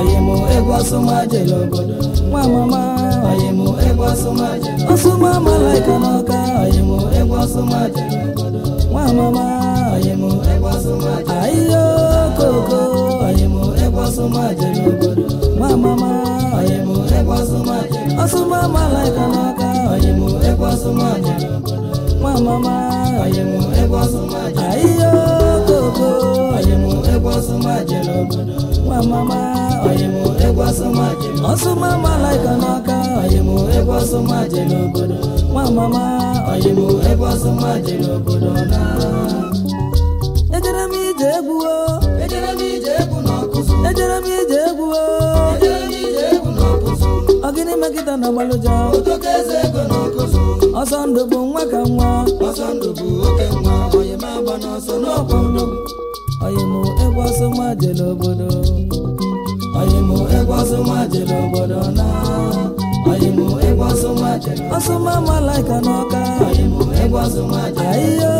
oyimo egwu ọsụmajele obodo nwa mama oyimo egwu ọsụmajele ọsụma malaika n'ọka oyimo egwu ọsụmajele obodo nwa mama oyimo egwu ọsụmajele ayiyo koko oyimo obodo obodo nwa mama obodo ọsụma malaika n'aka oyimo egwu ọsụma dị n'obodo nwa mama oyimo egwu ọsụma dị n'obodo na ejere m ije egwu ejere m ije egwu n'ọkụzụ ejere m ije egwu ọ megide na ọsọ ndụ bụ nwa ka nwa ọsọ oyimo egwu ọsụma n'obodo oyimu egwu jere obodo na jere ọsụma n'ọka oyimu jere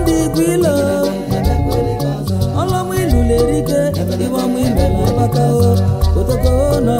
ndị gwilo ọlọmụ ilu na-erike ịgbamụ ilu na-agbakao otoko na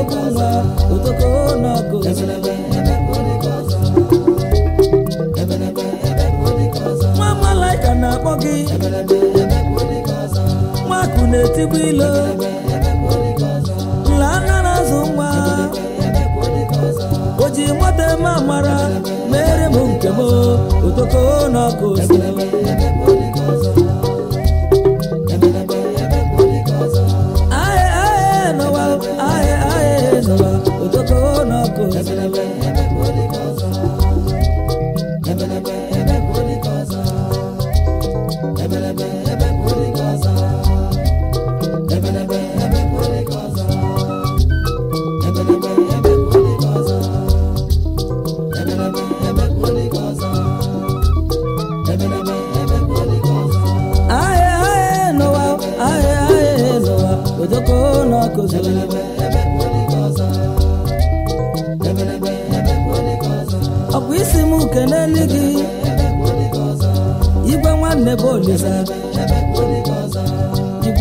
nwa odoko malaika na-akpọ gị nwaakụ na-etigbu ilo nla na-azụ nwa o ji nwata eme amara mere m nke m odoko n'ọgụ Ahịa bụ isi m uke n'elu gị igwe nwanne bụ olisa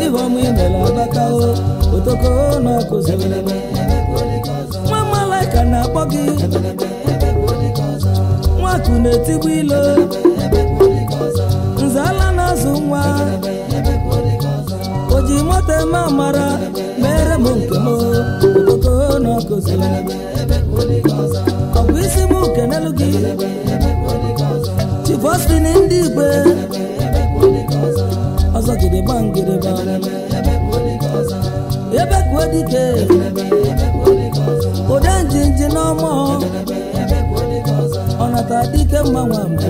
ibe ọmụ imela agbakao otoko n'ọkụ nwa malaika na-akpọ gị nwaku na-etigbu ilo nzala na-azụ nwa o ji nwata eme amara mere m nke m otoko n'ọkụ ọ bụ isi m kenelu gị chifostin ndị igwe ọzọ jiri gba ngịrịba ebe kwuo dike ụdị njinji ọzọ. ọnata dike mgbanwe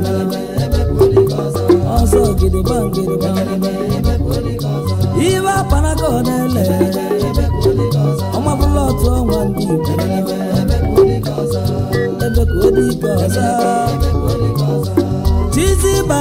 ọzọ jiri gba ngịrịba akpanaka ọ na-ele ọmabụla otu ọnwa ndị Igbo ebe kwuo dike ọzọ tizi by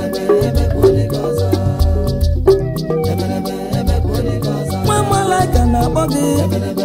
body.